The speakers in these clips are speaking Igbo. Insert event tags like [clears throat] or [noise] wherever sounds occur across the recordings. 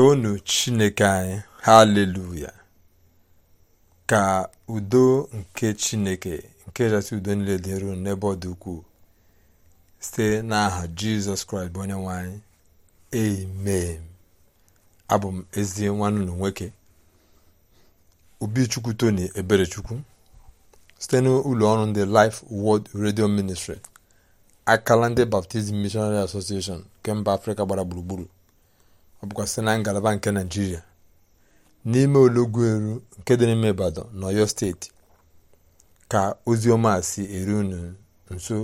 toonu chineke anyị haleluya ka udo nke chineke nke jasị udo niile dịru n'ebe ọ dị ukwuu site n'aha jizọs kraịst bụ onye nwanyị anyị amen abụ m ezi nwanne na nwoke obichukwu tony eberechukwu site n'ụlọ ọrụ ndị life world radio ministry akala ndị baptizim missionary association nke mba afrịka gbara gburugburu ọ bụkwa na ngalaba nke naijiria n'ime eru nke dị n'ime ibadan na steeti ka ozi ọma si eru unu nso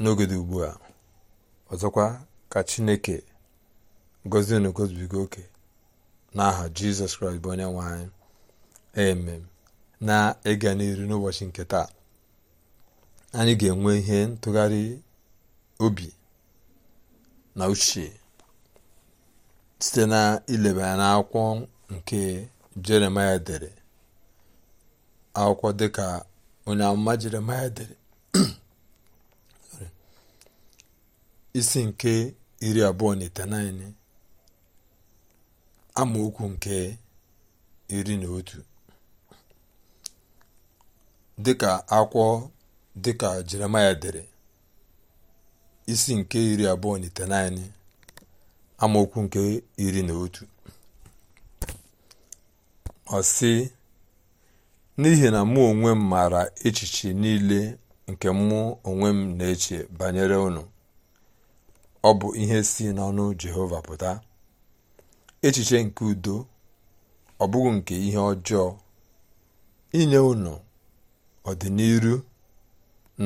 n'oge dị ugbu a ọzọkwa ka chineke gọzie unu gozibiga oke n'aha jizọs kraịst bụ onye nwe anyị emem na-ịga n'iru n'ụbọchị nke taa anyị ga-enwe ihe ntụgharị obi na uche site na ileba ya n'akwụkwọ nke jeremaya dere akwụkwọ dịka onye amụma jeremaya dere [clears throat] isi nke iri abụọ na itenaine amaokwu nke iri na otu dịka akwụkwọ dịka jeremaya dere isi nke iri abụọ na itenaine amaokwu nke iri na otu ọ sị n'ihi na mụ onwe m maara echiche niile nke mụ onwe m na-eche banyere unu ọ bụ ihe si n'ọnụ jehova pụta echiche nke udo ọ bụghị nke ihe ọjọọ inye unu ọdịniru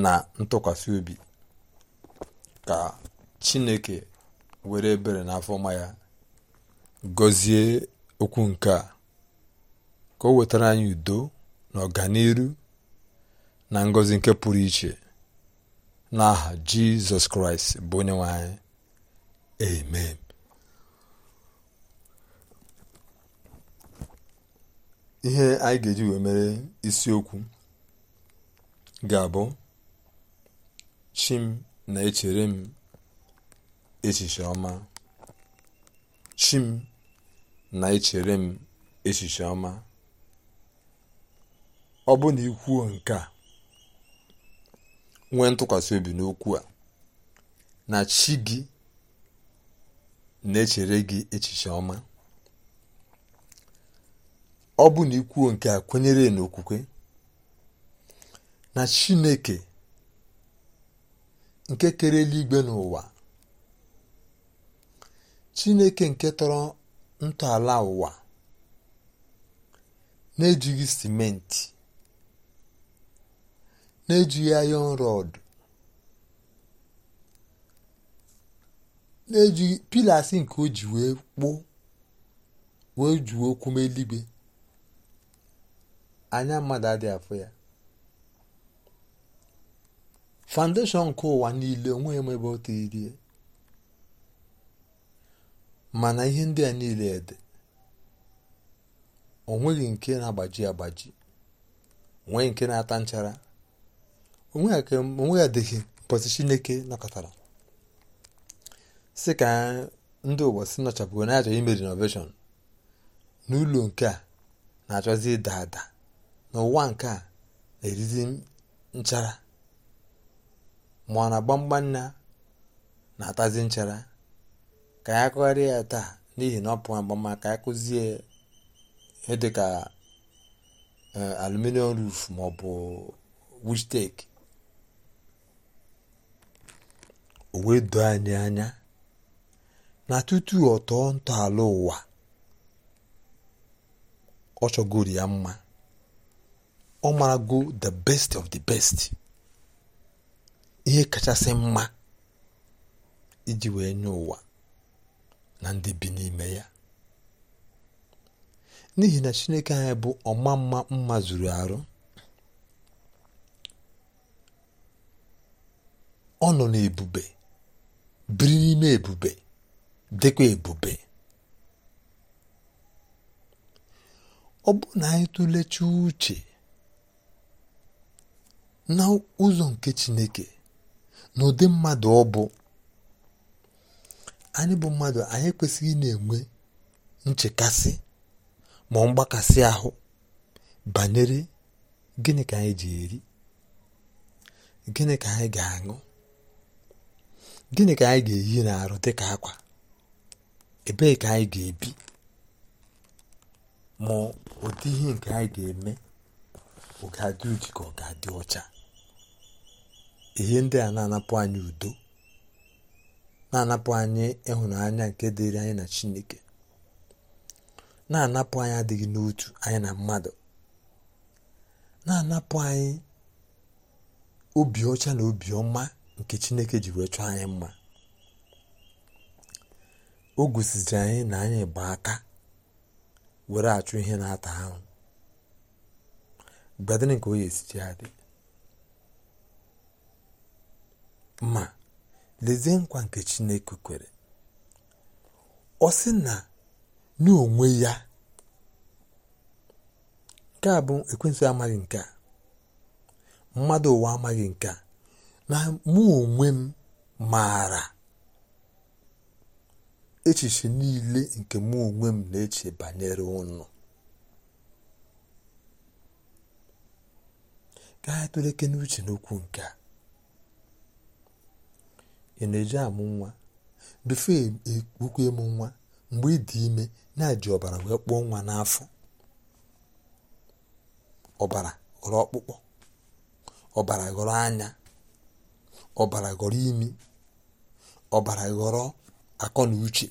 na ntụkwasị obi ka chineke were ebere na afọma ya gọzie okwu nke a ka o wetara anyị udo na ọganiru na ngọzi nke pụrụ iche n'aha jizọs kraịst bụ onye nwe anyị amen ihe anyị ga-eji wee mere isiokwu ga-abụ chi m na-echere m echiche ọma chi m na-echere m echiche ọma ọ bụ na ikwuo nke a nwee ntụkwasị obi n'okwu a na chi gị na-echere gị echiche ọma ọ bụ na ikwuo nke a kwenyere n'okwukwe na chineke nke kere eluigwe n'ụwa Chineke nke tọrọ ntọala ụwa na-ejighị simenti na-ejighị ayọn rọd na-ejighị pilasi nke o ji wee kpụọ wee juo eluigwe anya mmadụ adị afọ ya foundation nke ụwa niile onweghị m ebe o tiriri mana ihe ndị a niile dị o nke na-agbaji agbaji onwe nke na-ata nchara onwe ya adịghị mpọzi chineke nakọtara si ka ndị ụwa si nọchapụgo na-achọ ime renovation n'ụlọ nke a na-achọzi ịda ada n'ụwa nke a na-erizi nchara ma ọ na gbamgbam na na-atazi nchara ka ya kụgharịa ya taa n'ihi na ọ pụọ agbama ka ya kụzie dịka e, aluminium roof ma ọ bụ wistek o wee anyị anya na tutu ọ tọọ ntọala ụwa ọ chọgoro ya mma ọ marago the best of the best ihe kachasị mma iji wee nye ụwa na ndị bi n'ime ya n'ihi na chineke anyị bụ ọma mma mma zuru arụ ọ nọ n'ebube biri n'ime ebube dịkwa ebube ọ bụ na anyị tụlecha uche na ụzọ nke chineke na ụdị mmadụ ọ bụ anyị bụ mmadụ anyị kwesịghị na-enwe nchekasị ma mgbakasị ahụ banyere gịnị ka anyị ji eri gịnị ka anyị ga-aṅụ gịnị ka anyị ga-eyi n'arụ dị ka akwa ebee ka anyị ga-ebi ma ụdị ihe nke anyị ga-eme ọ ga-adị ka ọ ga-adị ọcha ihe ndị a na-anapụ anyị udo na-anapụ anyị ịhụnanya nke dịrị anyị na chineke na-anapụ anyị adịghị n'otu anyị na mmadụ na-anapụ anyị obi ọcha na obi ọma nke chineke ji wee chọọ anyị mma o gosiziri anyị na anyị bụ aka were achụ ihe na-ata ahụ gbadịrị nke onye esichi adị mma lezie nkwa nke chineke kwere ọ sị na n'onwe ya nke a bụ ekwensụ amaghị nke a mmadụ ụwa amaghị nke a na mụ onwe m maara echiche niile nke mụ onwe m na-eche banyere ụnụ ka anyị tụrụ eke n'uche n'okwu nke a ị na-eji amụ nwa bifo e, e ukwu ịmụ nwa mgbe ị dị ime na-eji ọbara wee kpụọ nwa n'afọ ọbara ghọrọ ọkpụkpọ ọbara ghọrọ anya ọbara ghọrọ imi ọbara ghọrọ akọ na uche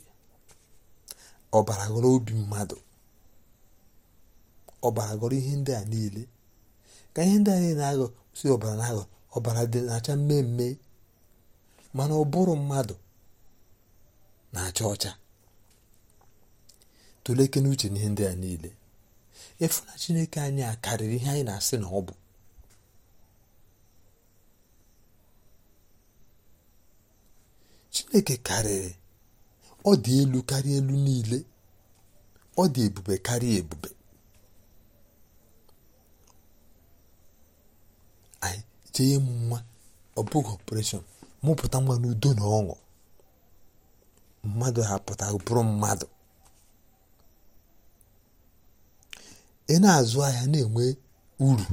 ọbara ghọrọ obi mmadụ ọbara ghọrọ ihe ndị a niile ka ihe ndị a niile na-aghọ si ọbara na-aghọ ọbara dị na-acha mmemme mana ụbụrụ mmadụ na-acha ọcha tụlekene uche n'ihe ndị a niile efu na chineke anyị a karịrị ihe anyị na-asị na ọ bụ chineke karịrị ọ dị elu karịa elu niile ọ dị ebube karịa ebube anyị jee nwa ọ bụghị ọpụreshọn mụpụta nwa n'udo na ọṅụ mmadụ hapụta bụrụ mmadụ ị na-azụ ahịa na-enwe uru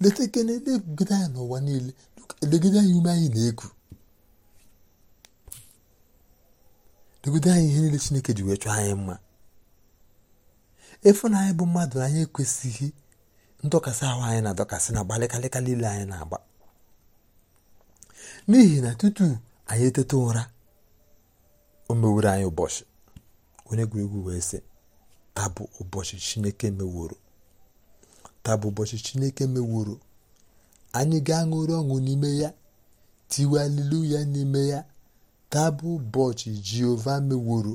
leta na legide anya n'ụwa niile legide anya ume anyị na-eku legide anyị ihe niile Chineke ji wee chọọ anyị mma ịfụnanya bụ mmadụ anyị ekwesịghị ndọkasị ahụ anyị na-adọkasị na gbalịkalịka niile anyị na-agba n'ihi na tutu anyị eteta ụra o meworo anyị ụbọchị onye egwuregwu wee sị taa ụbọchị chineke meworo taa ụbọchị chineke meworo anyị ga-aṅụrị ọṅụ n'ime ya tiwalilu ya n'ime ya tabụ ụbọchị jehova meworo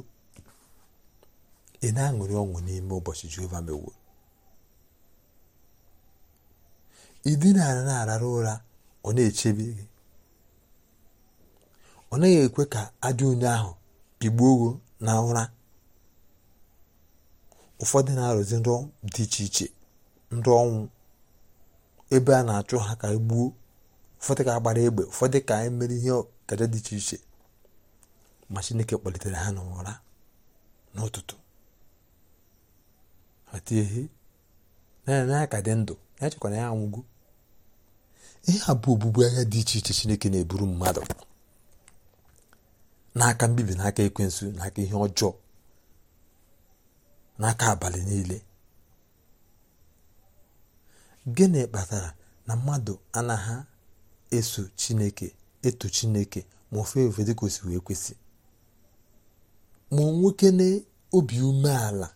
ị na-aṅụrị ọṅụ n'ime ụbọchị jehova meworo idinara na-arara ụra ọ na-echebe gị ọ naghị ekwe ka ajọ onye ahụ pigbuo gị na ụra ụfọdụ na-arụzi ndụ dị iche iche ndụ ọnwụ ebe a na-achụ ha ka egbuo ụfọdụ ka agbara egbe ụfọdụ ka emere ihe kaja dị iche iche ma chineke kpalitere ha n'ụra n'ụtụtụ ha tie ihe naanị ya ka dị ndụ ya ya anwụgo ihe a bụ obubu agha dị iche iche chineke na-eburu mmadụ n'aka mbibi n'aka ekwensu n'aka ihe ọjọọ n'aka abalị niile gịnị kpatara na mmadụ anaghị eso chineke eto chineke ma ofe ofe dị osi wee kwesị ma nwoke na obi umeala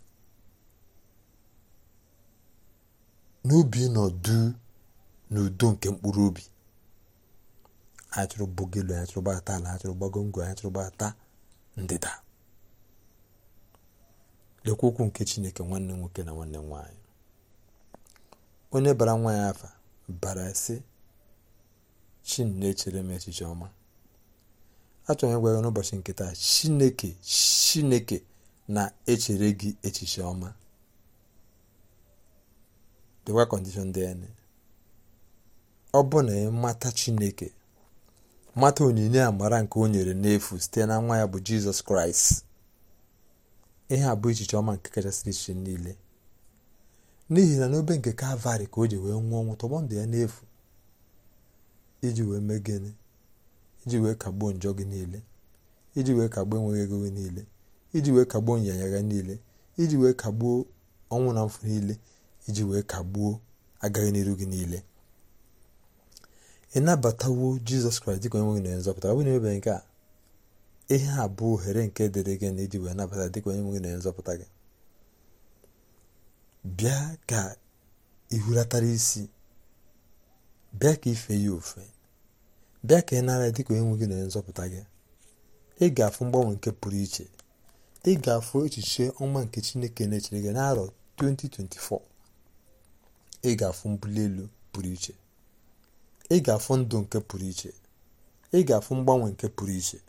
na obi nọdụ n'udo nke mkpụrụ obi anyị chọrọ bogelu anyị chọrọ gbata ala anyị chọrọ gbago ngwe anyị chọrọ gbata ndịda lekwa okwu nke chineke nwanne nwoke na nwanne nwaanyị onye bara nwa ya afa bara sị ne-echere m echiche ọma achọrọ ịgwa ya n'ụbọchị nkịta taa chineke chineke na-echere gị echiche ọma dịkwa kọndishọn dị anya Ọ ọbụna mata Chineke mata onyinye amara nke o nyere n'efu site na nwa ya bụ Jizọs Kraịst ihe a bụ echiche ọma nke kachasị iche niile n'ihi na n'obe nke kalvari ka o ji wee nwụọ ọnwụ tọgbọ ndụ ya n'efu iji wee mee gịnị iji wee kagbuo njọ gị niile iji wee kagbuo enweghị ego gị niile iji wee kagbuo nyanya gị niile iji wee kagbuo ọnwụ na mfu niile iji wee kagbuo agaghị n'iru gị niile ịnabatawo jizọs kraịst dịka onye nwe gị na nzọpụta ọ bụ na nke a ihe a bụ ohere nke dịrị gị na iji nabata dịka onye nwe gị na nzọpụta gị bịa ka ihulatara isi bịa ka ife ya ofe bịa ka ị nara dịka onye nwe gị na nzọpụta gị ị ga-afụ mgbanwe nke pụrụ iche ị ga-afụ echiche ọma nke chineke na-echere gị n'arọ 2024 ị ga-afụ mbuli elu pụrụ iche ị ga-afụ ndụ nke pụrụ iche ị ga-afụ mgbanwe nke pụrụ iche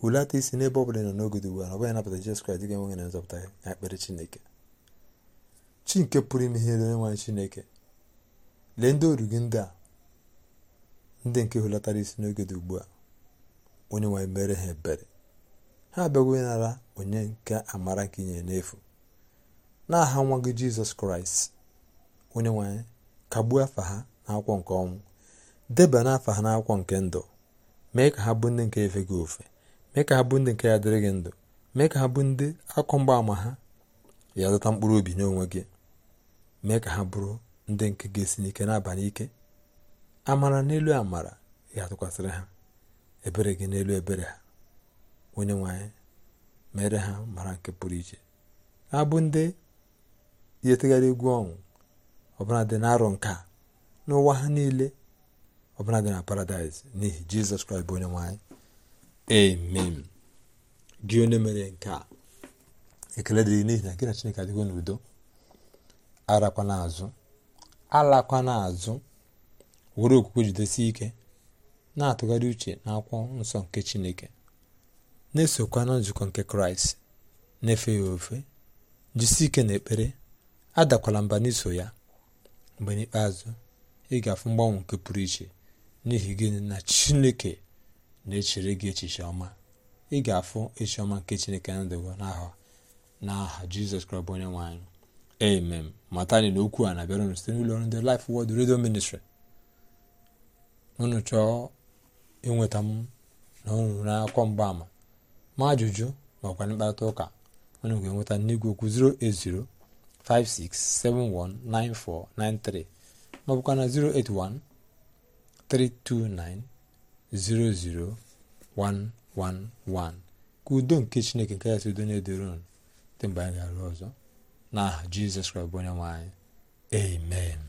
hulata isi n'ebe ọ bụla nọ n'oge dị ugbu a ọ bụghị napụta Jizọs Kraịst dịga enweghị na nzọpụta ya na Chineke chi nke pụrụ ime ihe onye nwanyị Chineke lee ndị oru gị ndị a ndị nke hulatara isi n'oge dị ugbu a onye nwanyị mere ha ebere ha abịaghị nara onye nke amara nke inye n'efu na aha nwa gị Jizọs Kraịst onye nwanyị kagbuo afa ha n'akwụkwọ nke ọnwụ debanye afa ha n'akwụkwọ nke ndụ mee ka ha bụ ndị nke efe gị ofe mee ka ha bụ ndị nke ya dịrị gị ndụ mee ka ha bụ ndị akọ mgbaama ha ya zụta mkpụrụ obi n'onwe gị mee ka ha bụrụ ndị nke ga-esi n'ike n'abalị ike amara n'elu amara ga-atụkwasịrị ha ebere gị n'elu ebere ha onye nwanyị mere ha mara nke pụrụ iche bụ ndị yetegharị egwu ọnwụ ọbụla dị na-arọ nke a n'ụwa ha niile ọbụla dị na paradaịs n'ihi jizọs kraịst bụ onye nwanyị amen gị onye mere nke a ekele dịrị n'ihi na gị na chineke adịgo n'udo arakwana azụ alakwana azụ were okwukwe jidesi ike na-atụgharị uche na akwụkwọ nsọ nke chineke na-esokwa na nzukọ nke kraịst na-efe ya ofe jisi ike na ekpere adakwala mba n'iso ya mgbe n'ikpeazụ ị ga-afụ mgbanwe nke pụrụ iche n'ihi gịnị na chineke na-echere gị echiche ọma ị ga-afụ echioma ọma nke chineke na ndịwa n'aha n'aha jizọs kraịst onye nwe anyị amen mata anyị na okwu a na-abịara site n'ụlọ ọrụ ndị Life Word Radio Ministry unu chọọ ịnweta m na unu mgbaama ma ajụjụ makwa mkparịta ụka unu ga-enweta n'igwe okwu 08056719493 ma bụkwa na 08132900111 ka udo nke Chineke nke ya udo na-edorun dị mgbe anyị ga-arụ ọzọ n'aha Jizọs Kraịst bụ onye nwe amen